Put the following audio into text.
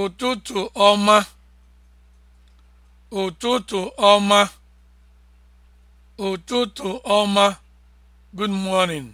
ụtụtụ ọma ụtụtụ ọma ụtụtụ ọma good morning